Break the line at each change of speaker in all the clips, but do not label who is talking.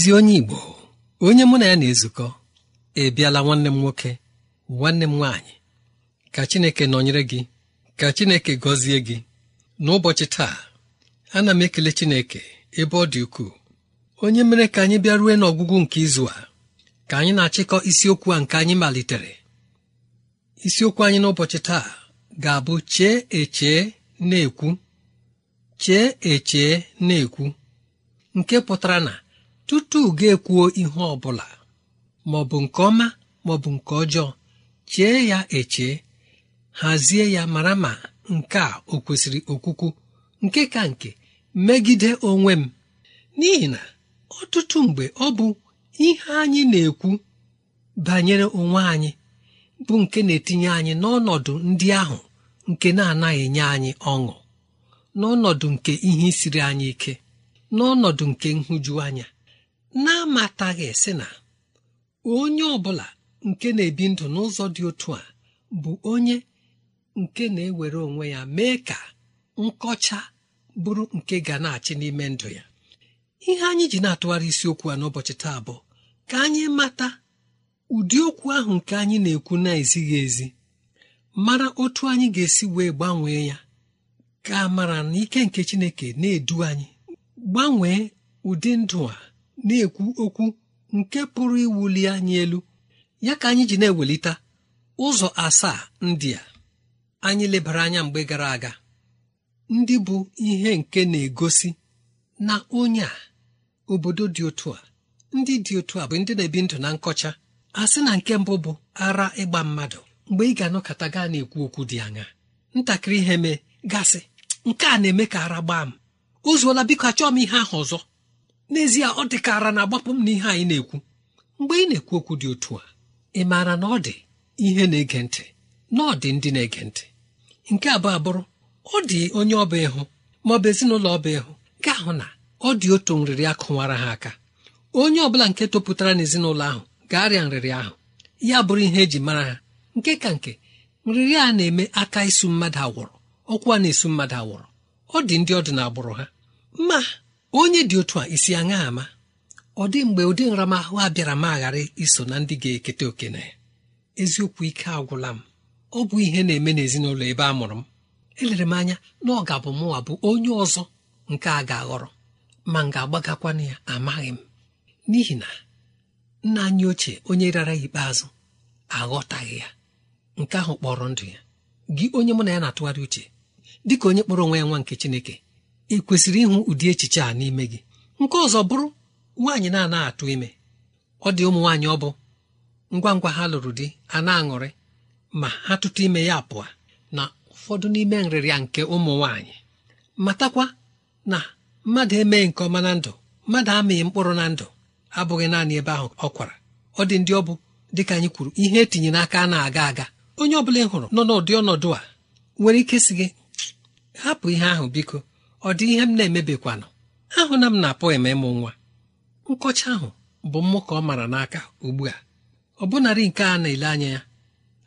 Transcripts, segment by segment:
ezi onye igbo onye mụ na ya na-ezukọ ị bịala nwanne m nwoke nwanne m nwaanyị ka chineke nọnyere gị ka chineke gọzie gị n'ụbọchị taa ana m ekele chineke ebe ọ dị ukwuu onye mere ka anyị bịa ruo n'ọgwụgwụ nke izu a ka anyị na-achịkọ isiokwu a nke anyị malitere isiokwu anyị n'ụbọchị taa ga-abụ chee echee na-ekwu chee echee na-ekwu nke pụtara na tutu ga-ekwuo ihe ọ bụla maọbụ nke ọma maọbụ nke ọjọọ chee ya eche hazie ya mara ma nke a o kwesịrị okwukwu nke ka nke megide onwe m n'ihi na ọtụtụ mgbe ọ bụ ihe anyị na-ekwu banyere onwe anyị bụ nke na-etinye anyị n'ọnọdụ ndị ahụ nke na-anaghị enye anyị ọṅụ n'ọnọdụ nke ihe siri anyị ike n'ọnọdụ nke nhụjuanya na-amataghị sị na onye ọbụla nke na-ebi ndụ n'ụzọ dị otu a bụ onye nke na-ewere onwe ya mee ka nkọcha bụrụ nke ga na-achị n'ime ndụ ya ihe anyị ji na-atụgharị isiokwu a n'ụbọchị taa bụ ka anyị mata ụdị okwu ahụ nke anyị na-ekwu na-ezighị ezi mara otu anyị ga-esi wee gbanwee ya ka mara na ike nke Chineke na-edu anyị gbanwee ụdị ndụ a na-ekwu okwu nke pụrụ iwuli anyị elu ya ka anyị ji na-ewelite ụzọ asaa ndị a anyị lebara anya mgbe gara aga ndị bụ ihe nke na-egosi na onye a obodo dị otu a ndị dị otu a bụ ndị na-ebi ndụ na nkọcha a sị na nke mbụ bụ ara ịgba mmadụ mgbe ị ga-anọkọta gaa na-ekwu okwu dị anya ntakịrị ihe mee gasị nke a na-eme ka ara gbaa m o biko achọọ m ihe ahụ ọzọ n'ezie ọ dịkara na agbapụ m na ihe anyị na-ekwu mgbe ị na-ekwu okwu dị otu a ị maara na ọ dị ihe na-ege ntị na ọ dị ndị na-ege ntị nke abụọ abụrụ ọ dị onye ọba ịhụ ma ọ bụ ezinụlọ ọba ịhụ ga ahụ na ọ dị otu nrịrị akụwara ha aka onye ọbụla nke topụtara n'ezinụlọ ahụ ga-arịa nrịrị ahụ ya bụrụ ihe eji mara ha nke ka nke nrịrị a na-eme aka isu mmadụ awụrụ ọkwa na-esu mmadụ agwụrụ ọ dị ndị ọdị na agbụrụ ha ma onye dị otu a isi aṅa ama ọ dị mgbe ụdị nramahụ a bịara ma aghara iso na ndị ga-eketa okene eziokwu ike agwụla m ọ bụ ihe na-eme n'ezinụlọ ebe a mụrụ m elere m anya na ọ ga-abụ mụwa bụ onye ọzọ nke a ga-aghọrọ ma m ga-agbagakwana ya amaghị m n'ihi na nna anyị ochie onye rara ikpeazụ aghọtaghị ya nke ahụ kpọrọ ndụ ya gị onye mụ na ya na-atụgharị uche dịka onye kpọrọ onwe ya nwa nke Chineke ị kwesịrị ịhụ ụdị echiche a n'ime gị nke ọzọ bụrụ nwaanyị na-anaghị atụ ime ọ dị ụmụ nwaanyị ọ bụ ngwa ngwa ha lụrụ di a na-aṅụrị ma ha tụtụ ime ya pụọ na ụfọdụ n'ime nrịrịa nke ụmụ nwaanyị matakwa na mmadụ emeghị nke ọma na ndụ mmadụ amịghị mkpụrụ na ndụ abụghị naanị ebe ahụ ọ kwara ọ dị ndị ọ bụ dịka anyị kwuru ihe etinye n'aka a na-aga aga onye ọ bụla ị hụrụ nọ n'ụdị ọnọdụ a nwere ike sị gị hapụ ihe ahụ biko ọ dị ihe m na-emebikwanụ ahụ na m na-apụ eme ịmụ nwa nkọcha ahụ bụ mmụ ka ọ mara n'aka ugbu a ọ bụnarị nke a na-ele anya ya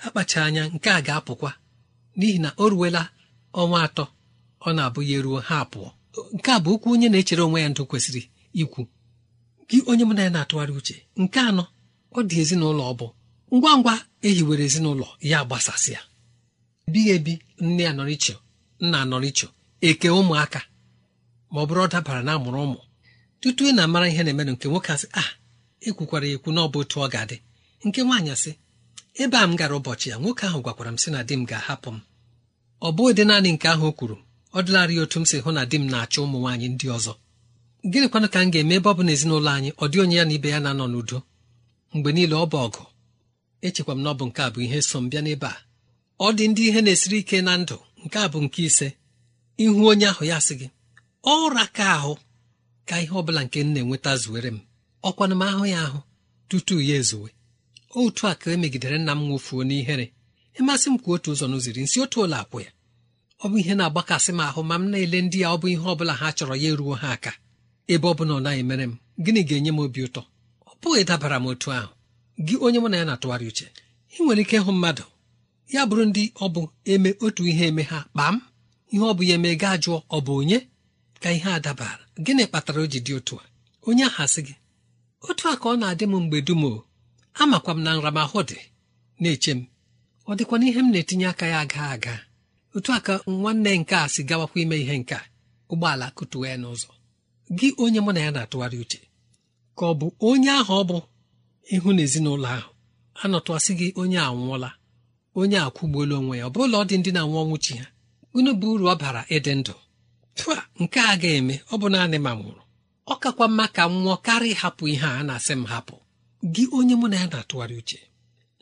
akpacha anya nke a ga-apụkwa n'ihi na o ruwela ọnwa atọ ọ na-abụ ya eruo ha apụọ nke a bụ okwu onye na-echere onwe ya ndụ kwesịrị ikwu gị onye m na ya na-atụgharị uche nke anọ ọ dị ezinụlọ ọ bụ ngwa ngwa ehiwere ezinụlọ ya gbasasịa ebighị ebi nne ya nọrọ iche nna nọrọ iche eke ụmụaka ma ọ bụrụ ọ dabara na amụrụ ụmụ tutu ị na-amara ihe na-emenụ nke nwoke asị a ah, ekwukwara ekwu na ọ bụ otu ọ ga-adị nke nwaanyị asị ebe a m gara ụbọchị ya nwoke ahụ gwakwara m sị na di m ga-ahapụ m ọ bụghị ụdị naanị nke ahụ o kwuru ọ dịlarị otu m si hụ na di m na-achọ ụmụ nwaanyị ndị ọzọ gịnịkwanụ ka m ga-eme ebe ọ bụ na ezinụlọ anyị ọ dị onye ya na ibe ya na-anọ n'udo mgbe niile ọ bụ ọgụ echekwa m na ọ bụ nke a bụ ihe so m bịa n'ebe a ọ dị ndị ihe na-esiri ike na ndụ nke a bụ nke ise ihu onye ahụ ya sị gị ọra ka ahụ ka ihe ọbụla nke m na-enweta zuwere m ọkwana m ahụ ya ahụ tutu ya ezuwe otu a ka emegidere nna m nwofuo n'ihere ịmasị m ka otu ụzọ n'ụziri nsi otu ụlọ akwụ ya ọ bụ ihe na-agbakasị m ahụ ma m na-ele ndị ya ọ bụ ihe ọbụla ha chọrọ ya eruo ha aka ebe ọ bụla ọ naghị mere m gịnị ga-enye m obi ụtọ ọ bụghị dabara m otu ahụ gị onye mụ na ya na-atụgharị uche ị nwere ike ịhụ mmadụ ya bụrụ ndị ọ bụ eme otu ihe eme ha kpaa m ihe ọ bụ ya eme gaa jụọ ọ bụ onye ka ihe a dabara gịnị kpatara o ji dị otu a onye aha sị gị otu a ka ọ na-adị m mgbe dum o amakwa m na nramahụ dị na-eche m ọ dịkwana ihe m na-etinye aka ya aga aga otu a ka nwanne nke a si gawakwa ime ihe nke ụgbọala kụtuwa ya n'ụzọ gị onye mụ na ya na-atụgharị uche ka ọ bụ onye ahụ ọ bụ ịhụ na ezinụlọ ahụ anọtụasị gị onye a nwụọla onye a kwụgbuola onwe ya ọ ụlọ ọ dị ndị na-anwụ ọnwụ ha unu bụ uru ọ bara ịdị ndụ pụa nke a ga-eme ọ bụ naanị ma nwụrụ ọ kakwa mma ka m nwụọ karịa ịhapụ ihe a na-asị m hapụ gị onye mụ na ya na-atụgharị uche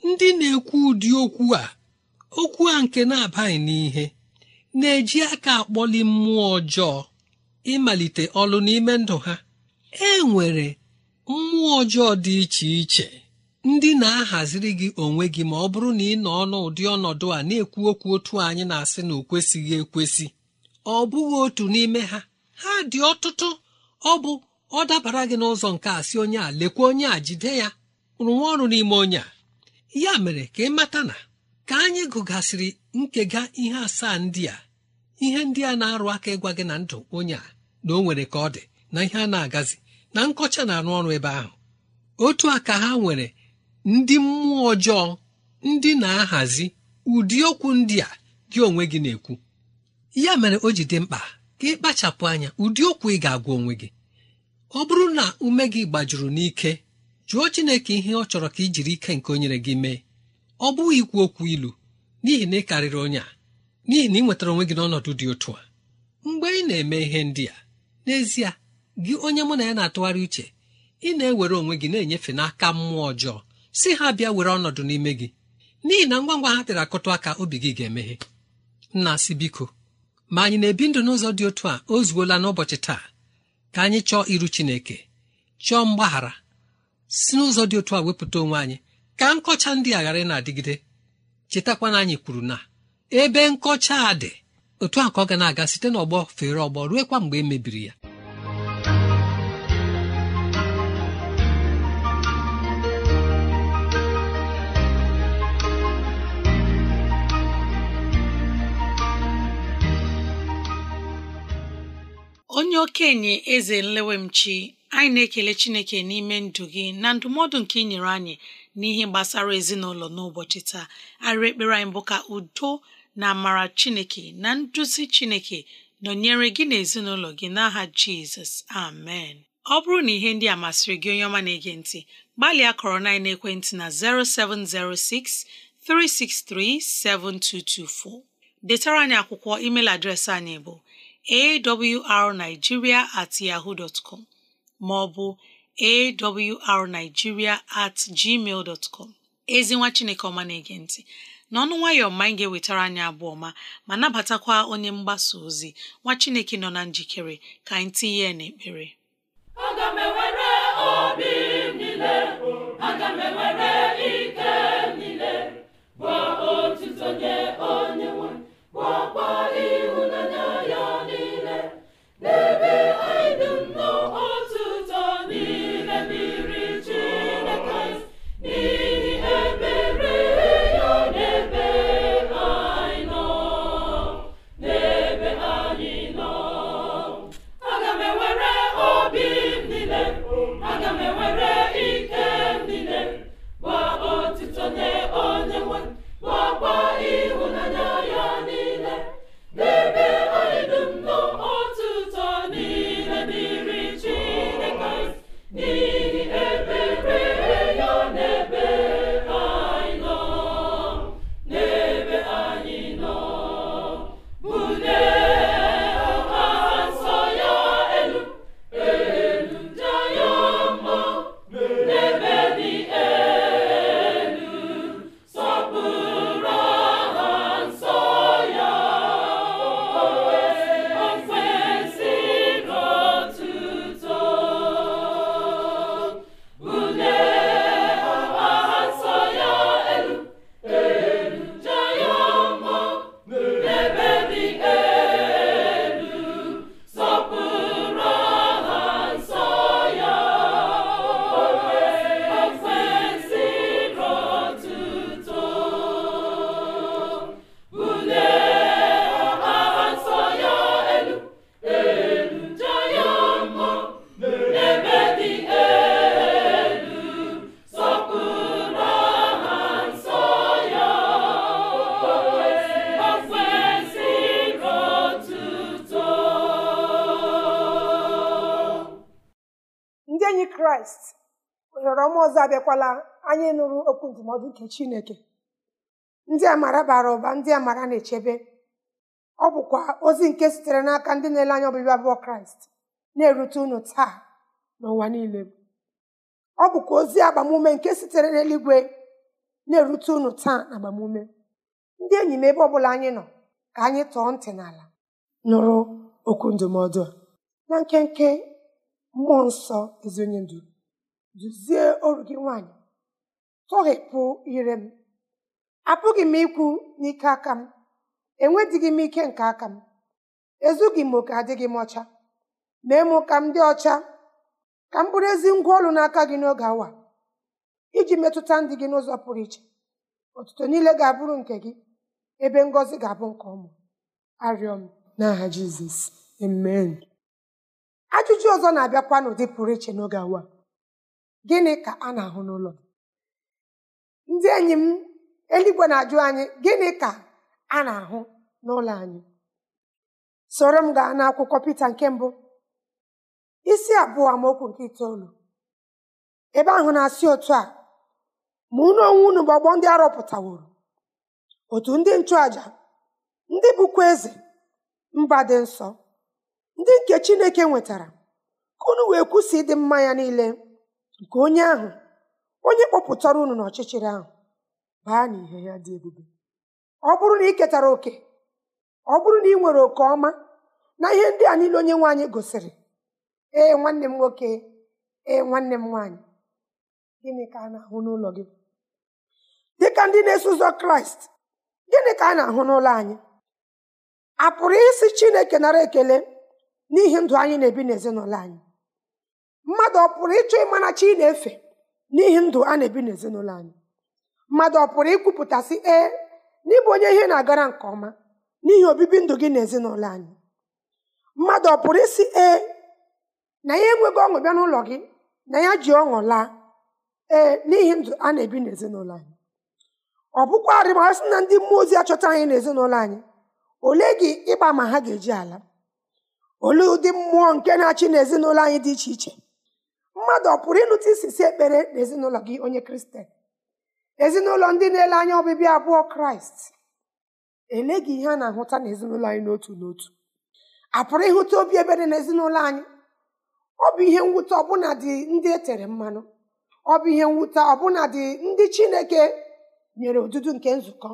ndị na-ekwu ụdị okwu a okwu a nke na-abaghị n'ihe na-eji aka akpọli mmụọ ọjọọ ịmalite ọlụ n'ime ndụ ha e nwere mmụọ ọjọọ dị iche iche ndị na-ahaziri gị onwe gị ma ọ bụrụ na ị nọ n'ụdị ụdị ọnọdụ a na-ekwu okwu otu anyị na-asị na o kwesịghị ekwesị ọ bụghị otu n'ime ha ha dị ọtụtụ ọ bụ ọ dabara gị n'ụzọ nke a sị onye a lekwa onye a jide ya rụwa ọrụ n'ime onye a ya mere ka ị mata na ka anyị gụgasịrị nkega ihe asaa ndị a ihe ndị a na-arụ aka ịgwa gị na ndụ onye a na o nwere ka ọ dị na ihe a na-agazi na nkọcha na-arụ ọrụ ebe ahụ otu a ka ha nwere ndị mmụọ ọjọọ ndị na-ahazi ụdị okwu ndị a gị onwe gị na-ekwu ya mere o ji dị mkpa ka ịkpachapụ anya ụdị okwu ị ga-agwa onwe gị ọ bụrụ na ume gị gbajuru n'ike jụọ Chineke ihe ọ chọrọ ka ị jiri ike nke o nyere gị mee ọ bụghị ikwu okwu ilu n'ihi na ị karịrị onye a n'ihi na ị nwetara onwe gị n'ọnọdụ dị otu a mgbe ị na-eme ihe ndị a n'ezie gị onye mụ na ya na-atụgharị uche ị na-ewere onwe gị na-enyefe n'aka mmụọ ọjọọ si ha bịa were ọnọdụ n'ime gị n'ihi na ngwa ngwa ha tere akụtụ aka obi gị ga-emeghe nna si biko ma anyị na-ebi ndụ n'ụzọ dị otu a o zuola n'ụbọchị taa ka anyị chọọ iru Chineke chọọ mgbaghara si n'ụzọ dị otu a wepụta onwe anyị ka nkọcha ndị a ghara na-adịgide chetakwana anyị kwuru na ebe nkọcha a dị otu a ka ọ ga na-aga site n'ọgbọ fere ọgbọ ruekwa mgbe e mebiri ya
okenye eze nlewemchi anyị na-ekele chineke n'ime ndụ gị na ndụmọdụ nke ị nyere anyị n'ihe gbasara ezinụlọ n'ụbọchị taa arịrị ekpere anyị bụ ka udo na amara chineke na nduzi chineke nọnyere gị na ezinụlọ gị n'aha jizọs amen ọ bụrụ na ihe ndị a masịrị gị onye ọma na-ege ntị gbalịa kọrọ na naekwentị na 0706 363 7224 detara anyị akwụkwọ email adreesị anyị bụ awrnigeria at yaho maọbụ ma ọ bụ awrnigeria at gmail dot ezi nwa chineke ọma na-ege ntị n'ọnụ nwayọ ma anyị ga-ewetara anyị abụọ ma ma nabatakwa onye mgbasa ozi nwa chineke nọ na njikere ka anyị tinye ya n'ekpere
aga m gwa otu onye nwe were
ndụmọdụ nke chineke ndị amara bara ụba ndị amara na-echebe ọ bụkwa ozi nke sitere n'aka ndị na-ele anya ọbịbịa abụọ kraịst na-erute unu taa n'ụwa niile ọ bụkwa ozi agbamume nke sitere n'eluigwe na-erute unu taa na agbamume ndị enyi m ebe ọbụla anyị nọ ka anyị tọọ ntị n'ala nụrụ okwu ndụmọdụ a na nkenke mmụọ nsọ ezi onye ndu duzie oru gị nwaanyị tọghepụ ire m apụghị m ikwu n'ike aka m enwedịghị m ike nke aka m ezughị m oke adịghị m ọcha mee mụ ka m dị ọcha ka m bụrụ ezi ngwa ọrụ n'aka gị n'oge awa iji metụta ndị gị n'ụzọ pụrụ iche ọtụtụ niile ga-abụrụ nke gị ebe ngozi ga-abụ nke ọmụ arịọ m n'aha jizọs amen ajụjụ ọzọ na-abịakwa n'ụdị pụrụ iche n'oge awa gịnị ka a na-ahụ n'ụlọ ndị enyi m eluigwe na-ajụ anyị gịnị ka a na-ahụ n'ụlọ anyị soro m gaa n'akwụkwọ Pita nke mbụ isi abụọ amaokwu nke itoolu ebe ahụ na-asị otu a ma unu onwe unu bụ ọgbọ ndị arọpụtaworo otu ndị nchụaja ndị bụkwa eze mba dị nsọ ndị nke Chineke nwetara ka unu wee kwụsị ịdị mma ya niile nke onye ahụ onye kpọpụtara unu n'ọchịchịrị ahụ baa n'ihe ya dị ebube ọ bụrụ na ị ketara oke ọ bụrụ na ị nwere oke ọma na ihe ndị a niile onye nwaanyị gosiri ee nwanne m nwoke ee nwanne m nwaanyị gịnị ka a na-ahụ n'ụlọ gị ka ndị na-eso ụzọ kraịst gịnị ka a na-ahụ n'ụlọ anyị a pụrụ isi chineke nara ekele n'ihi ndụ anyị na-ebi n'ezinụlọ anyị mmadụ ọ pụrụ ịchọ ịma na chi na-efe n'ihi ndụ a na-ebi n'ezinụlọ anyị mmadụ ọ pụrụ ikwupụtasị ee n'ịbụ onye ihe na-agara nke ọma n'ihi obibi ndụ gị n'ezinụlọ anyị mmadụ ọ pụrụ isi ee na ya enweghị ọṅụ bịa n'ụlọ gị na ya ji ọṅụ laa ee n'ihi ndụ a na-ebi n'ezinụlọ anyị ọ bụkwarị ma sị na ndị mmụọ ozi achọta anyị n'ezinụlọ anyị ole gị ịgba ma ha ga-eji ala olee ụdị mmụọ nke na-achị n'ezinụlọ anyị dị iche iche mmadụ ọ pụrụ ịnụta isisi ekpere n'ezinụlọ gị onye kristian ezinụlọ ndị na-ele anya ọbịbịa abụọ kraịst eleghị ihe a na-ahụta n'ezinụlọ anyị n'otu n'otu a pụrụ ịhụta obi ebere n'ezinụlọ anyị ọ bụ ihe mwute ọbụna dị ndị e tere mmanụ ọ bụ ihe mwute ọbụna dị ndị chineke nyere odudu nke nzukọ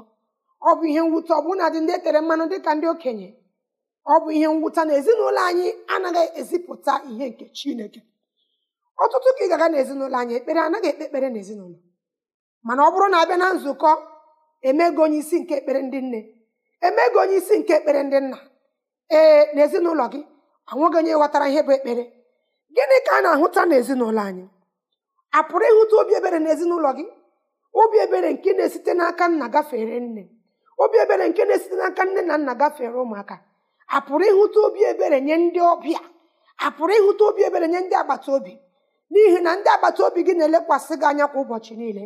ọ bụ ihe mwute ọbụna dị ndị e tere mmanụ ka ndị okenye ọ bụ ihe mwute na ezinụlọ anyị anaghị ezipụta ihe nke chineke ọtụtụ ka ị gaga n'ezinụlọ anyị ekpere anaghị ekpe ekpere n'ezinụlọ mana ọ bụrụ na abịa na nzukọ emego onye isi nke ekpere ndị nne emego onye isi nke ekpere ndị nna ee n'ezinụlọ gị anwụghị onye ghọtara ihe bụ ekpere gịnị ka a na-ahụta n'ezinụlọ anyị a pụrụ ịhụta obi ebere n'ezinụlọ gị obi ebere nke na-esite n'aka nna gafere nne obi ebere nke na-esite n'aka nne na nna gafere ụmụaka a pụrụ ịhụta obi ebere nye ndị ọbịa a pụrụ ịhụta obi ebere nye ndị agbata obi n'ihi na ndị agbata obi gị na-elekwasị gị anya kwa ụbọchị niile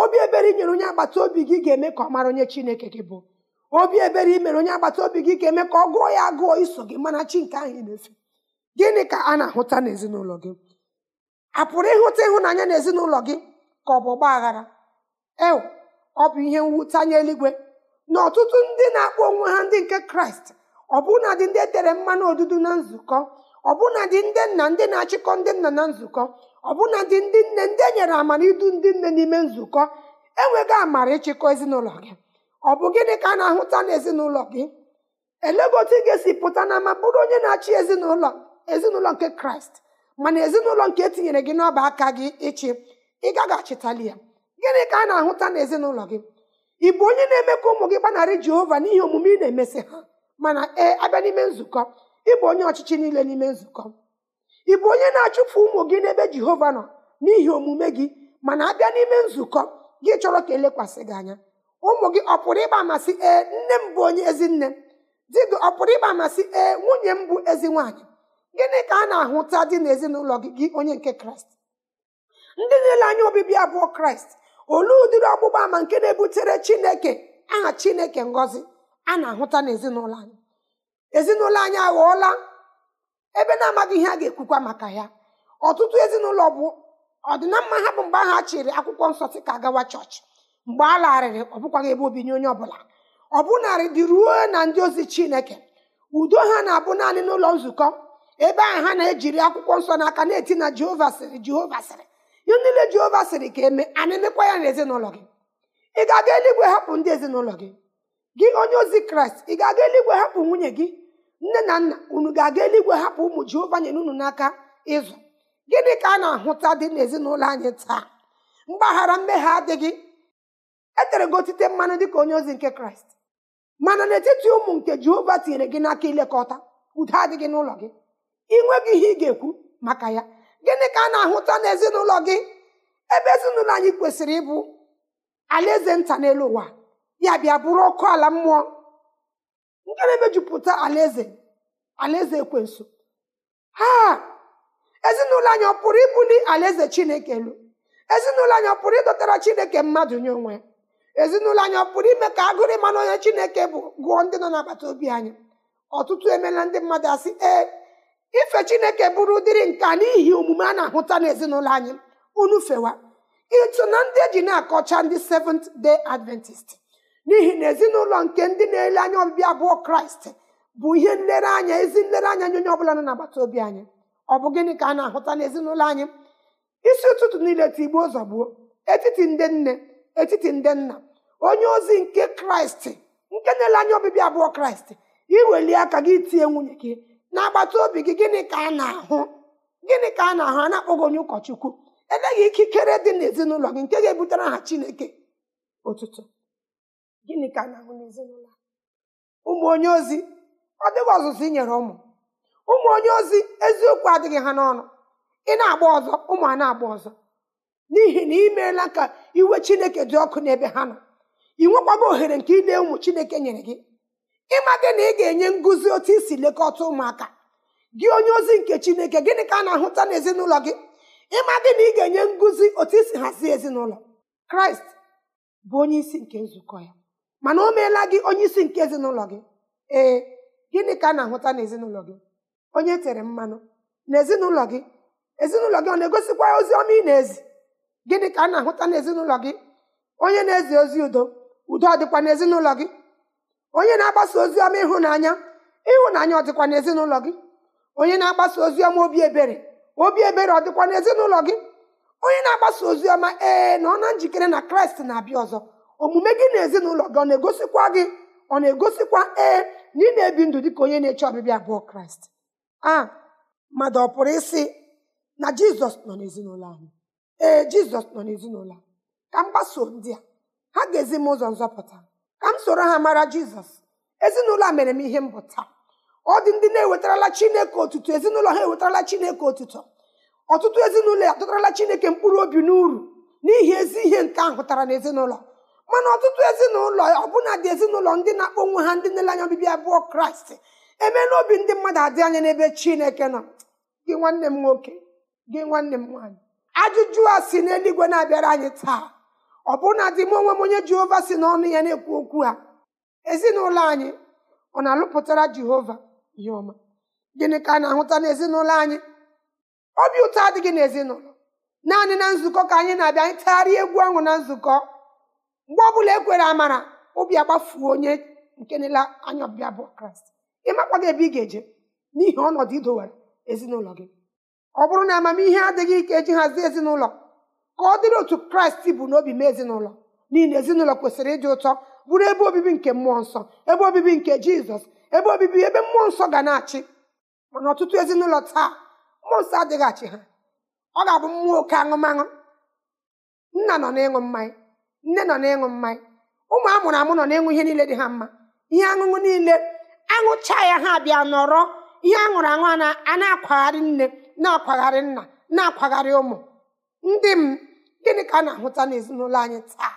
obi ebere inyere onye agbata obi gị ga-eme ka ọ mara onye chineke gị bụ obi ebere imere onye agbata obi gị ga-eme ka ọ gụọ ya agụọ iso gị mana chi nke ahụ na-efe gịnị ka a na-ahụta n'ezinụlọ gị a pụrụ ịhụta ịhụnanya n'ezinụlọ gị ka ọ bụ ọgba aghara ọ bụ ihe mwutanye eluigwe na ọtụtụ ndị na-akpọ onwe ha ndị nke kraịst ọ bụrụ na dị ndị e tere mmanụ odudu na nzukọ ọbụnadị ndị nna ndị na-achịkọ ndị nna na nzukọ ọbụnadị ndị nne ndị enyere amara idu ndị nne n'ime nzukọ enweghị amara ịchịkọ ezinụlọ gị ọ bụ gịnị ka a na-ahụta n'ezinụlọ gị elego otu ị ga-esi pụta na ama bụrụ onye na-achị ezinụlọ ezinụlọ nke kraịst mana ezinụlọ nke etinyere gị n'ọba aka gị ịchị ị gaghị achịtali ya gịnị ka a na-ahụta n'ezinụlọ gị ị bụ onye na-eme ka ụmụ gị gbanarị jehova n'ihi omume ị na emesi ha mana ee abịa n'ime nzukọ ịbụ onye ọchịchị niile n'ime nzukọ ị bụ onye na-achụpụ ụmụ gị n'ebe jehova nọ n'ihi omume gị mana abịa n'ime nzukọ gị chọrọ ka elekwasị gị anya ụmụ gị ọ pụrụ ịgba amasị ee nne m bụ onye ezi nne di gị ọ pụrụ ịgba amasị ee nwunye m bụ ezi nwaanyị gịnị ka a na-ahụta dị n'ezinụlọ gị gị onye nke kraịst ndị na anya obibi abụọ kraịst olee ụdịrị ọgbụgba ama nke na-ebutere chineke aha chineke ngọzi a na-ahụta n'ezinụlọ anyị ezinụlọ anyị aghọọla ebe na-amaghị ihe a ga-ekwukwa maka ya ọtụtụ ezinụlọ bụ ọdịnamma ha bụ mgbe ahụ a chịrị akwụkwọ nsọ si ka gawa chọọchị mgbe a larịrị ọ bụkwaghị ebe obinye onye ọbụla ọ bụnarị dị ruo na ndị ozi chineke udo ha na-abụ naanị n'ụlọ nzukọ ebe ahụ ha na-ejiri akwụkwọ nsọ n'aka na-eti na jehova sịrị jehova sịrị ihe niile jehova sịrị ka eme a na-emekwa ya n'ezinụlọ gị ị ga-aga eluigwe hapụ ndị ezinụlọ gị gị onye ozi kraịst ị ga-aga eluigwe hapụ nwunye gị nne na nna unu ga-aga eluigwe hapụ ụmụ jehova nyere unu n'aka ịzụ gịnị ka a na-ahụta dị n'ezinụlọ anyị taa mgbaghara mmehie adịghị etere gị otite mmanụ ka onye ozi nke kraịst mana n'etiti ụmụ nke jehova tinyere gị n'aka ilekọta udo adịghị n'ụlọ gị ịnweghị ihe ị ga-ekwu maka ya gịnị ka a na-ahụta n'ezinụlọ gị ebe ezinụlọ anyị kwesịrị ịbụ alaeze nta n'elu ụwa ya bịa bụrụ ọkụ ala mmụọ na emejupụta alaeze alaeze ekwensu ha ezinụlọ anyị ọ pụrụ ibuli alaeze chineke elu ezinụlọ anyị ọ pụrụ ịdọtara chineke mmadụ nye onwe ezinụlọ anyị ọ pụrụ ime ka agụrụ ịma onye chineke bụ gụọ ndị nọ n'agbata obi anyị ọtụtụ emeela ndị mmadụ asị ee ife chineke bụrụ ụdịrị nka n'ihi omume a na-ahụta n'ezinụlọ anyị unu fewa ịtụ na ndị eji na-akọcha ndị Seventh Day Adventist n'ihi na ezinụlọ nke ndị na-ele anya ọbịbịa abụọ kraịst bụ ihe nlereanya ezi nlereanya nye onye ọbụla nọ n'agbata obi anyị ọ bụ gịnị ka a na-ahụta n'ezinụlọ anyị isi ụtụtụ niile tigbuo ụzọ gbuo etiti ndị nne etiti ndị nna onye ozi nke kraịst nke na-ele anya ọbịbịa abụọ kraịst iweli aka gị tinye nwunye gị agbata obi gị gịnị ka a na-ahụ gịnị ka a na-ahụ a na-akpọghị onye ụkọchukwu eleghị ikikere dị n'ezinụlọ gị nke ga-ebutere ha chineke ụtụtụ gịnị ka a na-ahụ n'ezinụlọ ụmụ onye ozi ọ dịghị ọzụzụ i nyere ụmụ ụmụ onye ozi eziokwu adịghị ha n'ọnụ ị na-agba ọzọ ụmụ a na-agba ọzọ n'ihi na ị meela ka iwe chineke dị ọkụ n'ebe ha nọ ị nwekwago ohere nke ile ụmụ chineke nyere gị ịmadị na ị ga-enye ngụzi otu isi lekọta ụmụaka gị onye ozi nke chineke gịnị ka a na-ahụta n'ezinụlọ gị ịmadị na ị ga-enye ngụzi otu isi hazie ezinụlọ kraịst bụ onye isi nke nzukọ ya mana o meela gị onye isi nke ezinụlọ gị ee gịnị ka a na-ahụta n'ezinụlọ gị onye tere mmanụ n'ezinụlọ gị ezinụlọ gị ọ na-egosikwa ozi ọma ị na-ezi gịnị ka a na-ahụta n'ezinụlọ gị onye na-ezi ozi udo udo ọ dịkwa n'ezinụlọ gị onye na-agbasa ozi ọma ịhụnanya ịhụnanya ọ dịkwa n'ezinụlọ gị onye na-agbasa ozi ọma obi ebere obi ebere ọ dịkwa n'ezinụlọ gị onye na-agbasa ozi ọma ee na ọ na njikere na kraịst na-abịa ọzọ omume gị na ezinụlọ gị ọ na-egosikwa gị ọ na-egosikwa ee na ị na-ebi ndụ dịka onye na-eche ọbịbịa bụ kraịst a mmadụ ọ pụrụ isi na jizọs nọ n'ezinụlọ anyị ee jizọs nọ n'ezinụlọ ka m gbasoo ndị a ha ga-ezi m ụzọ nzọpụta ka m soro ha mara jizọs ezinụlọ a mere m ihe mbụta taa ọ dị ndị na-ewetarala chineke otuto ezinụlọ ha ewetarala chineke otutu ọtụtụ ezinụlọ ya adọtarala chineke mkpụrụ obi n'uru n'ihi ezi ihe nke ahụ pụtara n'ezinụlọ mana ọtụtụ ezinụlọ ọbụna dị ezinụlọ ndị na-akpọ ha ndị nele anya obibi abụọ kraịst eme n'obi ndị mmadụ adị anya n'ebe chineke nọ gị nwanne m nwoke gị nwanne m nwaanyị ajụjụ a si n'eluigwe na-abịara anyị taa bụna dị m onwe m onye jehova si n'ọnụ ya na-ekwu okwu ha ezinụlọ anyị ọ na-alụpụtara jehova ihe ọma gịnị ka a na-ahụta n'ezinụlọ anyị obi ụtọ adịghị n'ezinụlọ naanị na nzukọ ka anyị na-abịa anyị tagharịa egwu ahụ na nzukọ mgbe ọbụla ekwere amara obi agbafuo onye nke nela anya ọbịa bụ kraịst ịmakwa gị ebe ị ga-eje n'ihi ọnọdụ idowere ezinụlọ gị ọ bụrụ na amamihe adịghị ike eji hazie ezinụlọ ka ọ dịrị otu kraịst bụ n'obi mee ezinụlọ n'ihi na ezinụlọ kwesịrị ịdị ụtọ bụrụ ebe obibi nke mmụọ nsọ ebe obibi nke jizọs ebe obibi ebe mmụọ nsọ ga na-achị mana ọtụtụ ezinụlọ taa mmụọ nsọ adịghị achị ha ọ ga-abụ mmụọ oke aṅụmaṅụ nna nọ n'ịṅụ mmanya nne nọ na-ịṅụ mmanya ụmụ amụrụ amụ nọ na-ịṅụ ihe niile dị ha mma ihe aṅụṅụ niile aṅụcha ya ha bịa nọrọ ihe aṅụrụ aṅụ a na-akwagharị nne na-akwagharị nna na-akwagharị ụmụ ndị m gịnị ka a na-ahụta n'ezinụlọ anyị taa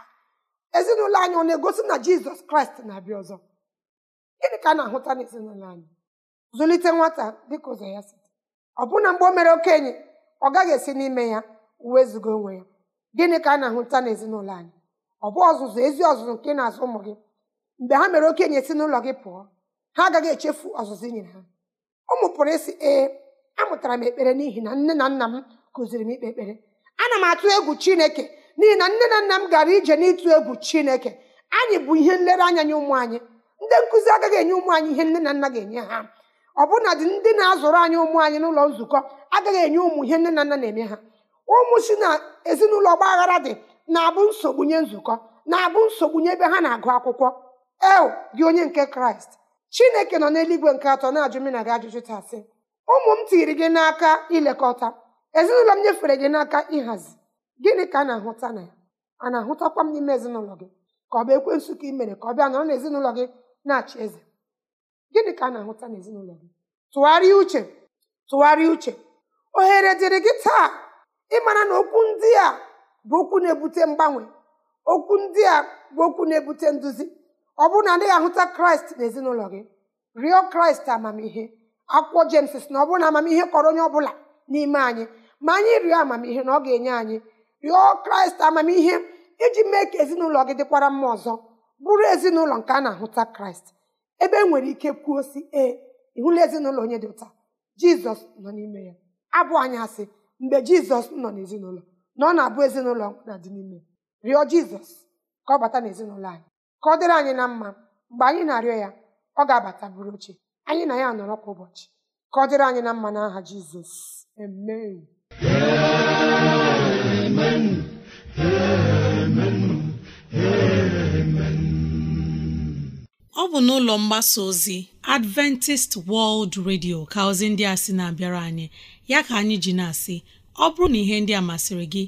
ezinụlọ anyị ọ na-egosi na jizọs kraịst na-abịa ọzọ gịnị ka a na-ahụta n'ezinụlọ anyị zụlite nwata dịka ụzọ ya si ọbụna mgbe o mere okenye ọ gaghị esi n'ime ya wezụga onwe ya gịnị ka a na-ahụta n'ezinụlọ anyị ọ bụ ọzụzụ ezi ọzụzụ nke na-azụ ụmụ gị mgbe ha mere okenye si n'ụlọ gị pụọ ha agaghị echefu ọzụzụ inyere ha ụmụ pụrụ ịsị ee amụtara m ekpere n'ihi na nne na nna m kụziri m ikpe ekpere ana m atụ egwu chineke n'ihi na nne na nna m gara ije n'ịtụ egwu chineke anyị bụ ihe nlereanya nye ụmụ anyị ndị nkụzi agaghị enye ụmụ anyị ihe nne na nna ga-enye ha ọbụna dị ndị na-azụrụ anyị ụmụ anyị n'ụlọ nzukọ agaghị enye ụmụ ihe nne na nna na-eme ha ụmụ si na ezinụlọ ọgba dị na-abụ nsogbu nye nzukọ na-abụ nsogbu nye ebe ha na-agụ akwụkwọ eo gị onye nke kraịst chineke nọ n'eluigwe nke atọ na-ajụ m na gị ajụjụ taa sị ụmụ m tiiri gị n'aka ilekọta ezinụlọ m nyefere gị n'aka ịhazi gịnị ka a na-ahụta na ya a na-ahụtakwa m n'ime ezinụlọ gị ka ọ bụ ekwe ka ị mere ka ọ bịa nọrọ n'ezinụlọ gị na-achị eze gịnị ka a na-ahụta n'ezinụlọ gị tụgharịa uche tụgharịa uche ohere dịrị gị taa ịmara na okwu ndị a bụ okwu na-ebute mgbanwe okwu ndị a bụ okwu na-ebute nduzi ọ bụrụ na adịghị ahụta kraịst n'ezinụlọ gị rịọ kraịst amamihe akwụkwọ jems sị na ọ bụrụ na amamihe kọrọ onye ọ bụla n'ime anyị ma anyị rịọ amamihe na ọ ga-enye anyị rịọ kraịst amamihe iji mee ka ezinụlọ gị dịkwara mma ọzọ bụrụ ezinụlọ nke a na-ahụta kraịst ebe e nwere ike kwuo si ee ịhụla ezinụlọ onye dị ụta jizọs nọ n'ime ya abụ anyị asị mgbe jizọs nọ n'ezinụlọ na ọ na-abụ ezinụlọ na dị n'ime rịọ jizọs ka ọ bata n'ezinụlọ anyị ka ọ dịrị anyị na mma mgbe anyị na-arịọ ya ọ ga-abata bụrụ oche anyị na ya nọrọ kwa ụbọchị ka ọ dịrị anyị na mma n'aha jizọs
ọ bụ n'ụlọ mgbasa ozi Adventist World Radio ka ozi ndị a sị na-abịara anyị ya ka anyị ji na-asị ọ bụrụ na ihe ndị a masịrị gị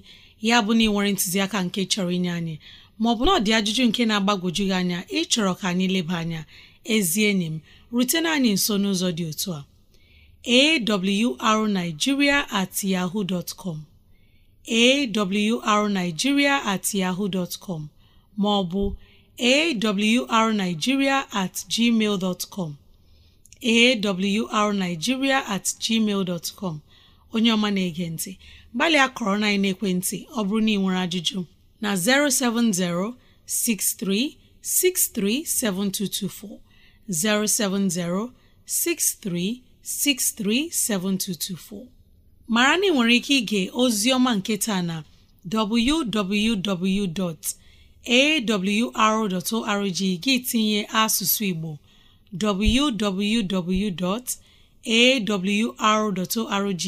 ya bụ na ị nwere ntụziaka nke chọrọ inye anyị maọbụ na ọ dị ajụjụ nke na-agbagwoju gị anya ịchọrọ ka anyị leba anya ezi enyi m rutena anyị nso n'ụzọ dị otu a awrnigeria at yahoo dot com yahoo dot maọbụ awrnigeria at gmail dot com at gmail dot onye ọma na-ege ntị gbalịa kọrọ na ekwentị ọ bụrụ na ị nwere ajụjụ na 070 6363 7224 070 6363 7224 mara na ị nwere ike ige ozi ọma nke taa na www.awr.org gị tinye asụsụ Igbo www. awr.org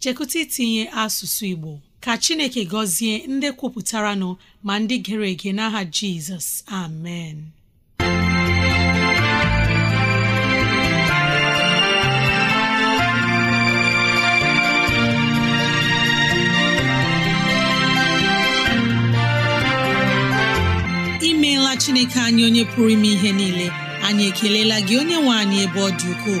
chekụta itinye asụsụ Igbo ka Chineke gọzie ndị kwupụtara nọ ma ndị gere ege n'aha Jizọs amen imeela Chineke anyị onye pụrụ ime ihe niile anyị ekelela gị onye nwe anyị ebe ọ dị ukwuu